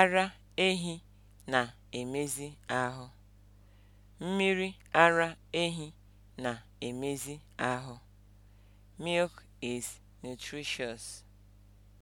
Ara ehi na-emezi ahụ. Mmiri ara ehi na-emezi ahụ. Milk is nutritious.